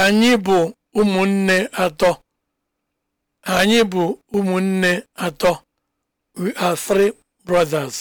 Anyị bụ ụmụnne atọ. Anyị bụ ụmụnne atọ. We are three brothers.